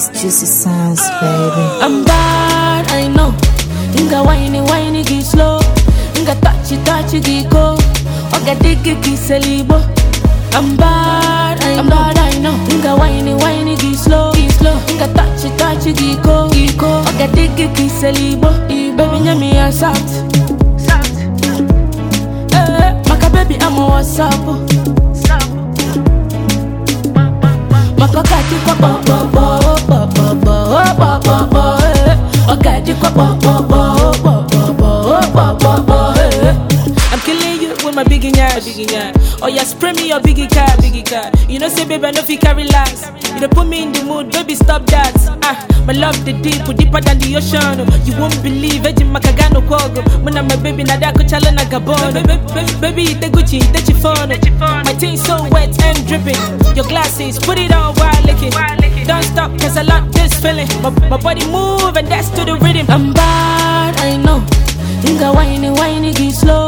It's juicy sounds, baby. I'm bad, I know. Nga whiny, whiny, get slow. Nga touchy, touchy, get go. Oga diggy, get salibo. I'm bad, I I'm know. bad, I know. Nga whiny, whiny, get slow. Get slow. Nga touchy, touchy, get go. Get go. Oga diggy, get salibo. Baby, nyami, I'm soft. Soft. Eh, eh, maka baby, I'm a what's kpọkpọkpọ my biggie nyash. Biggie nyash. Oh yeah, spray me your biggie car, biggie car. You know say baby I no fit carry last. You know put me in the mood, baby stop that. Ah, my love the deep, deeper than the ocean. You won't believe, eji makagano kogo. Muna my baby nada da kuchala na gabon. Baby ite Gucci, ite chiffon. My things so wet and dripping. Your glasses, put it on while licking. Don't stop, cause I love this feeling. My, my body move and that's to the rhythm. I'm bad, I know. Think I whine, whine, get slow.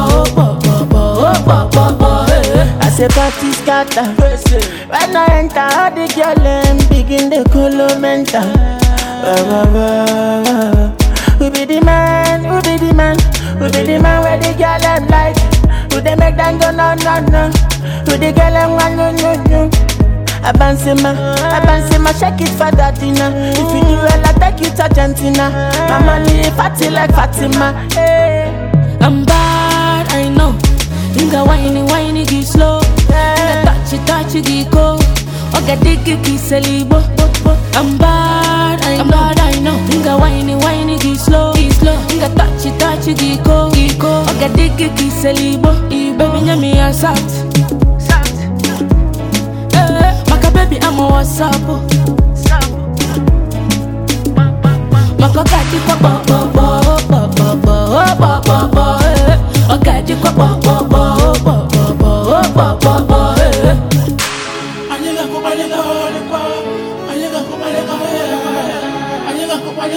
say party scatter When I enter, all the girl them begin the colo mental Who be the man, who be the man Who be the man where the girl them like Who they make them go no no no Who the girl them want no no no Abansema, Abansema, shake it for Dadina. If you do well, I take you to Argentina. Mama live fatty like Fatima. Hey. Eh. I'm bad, I know. Nigga whiny, whiny, give slow. I got the kick is a I'm bad, I'm bad, I know. Nga whiny, whiny, get slow, get slow. Nga touch it, touch go, get go. I got the kick ibo Baby, nyami, sat. Sat. maka baby, I'm a Maka kati kwa bo bo bo bo bo bo bo bo bo. kwa bo bo.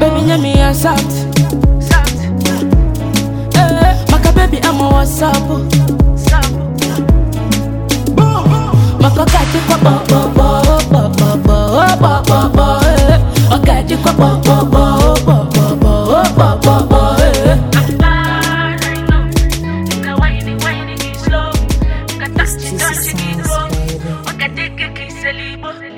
Baby, yeah, me a salt. Eh, Maka baby, I'm a WhatsApp. Maka kati kwa bo bo bo bo bo bo bo bo bo. Okati kwa bo bo bo bo bo bo bo bo bo. Touch it, touch it,